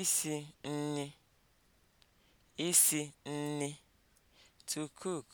isi nri (isi nri) to cook